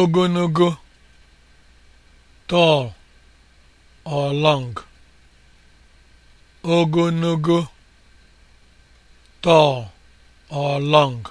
Ogonogo tall or long ogologo tall or long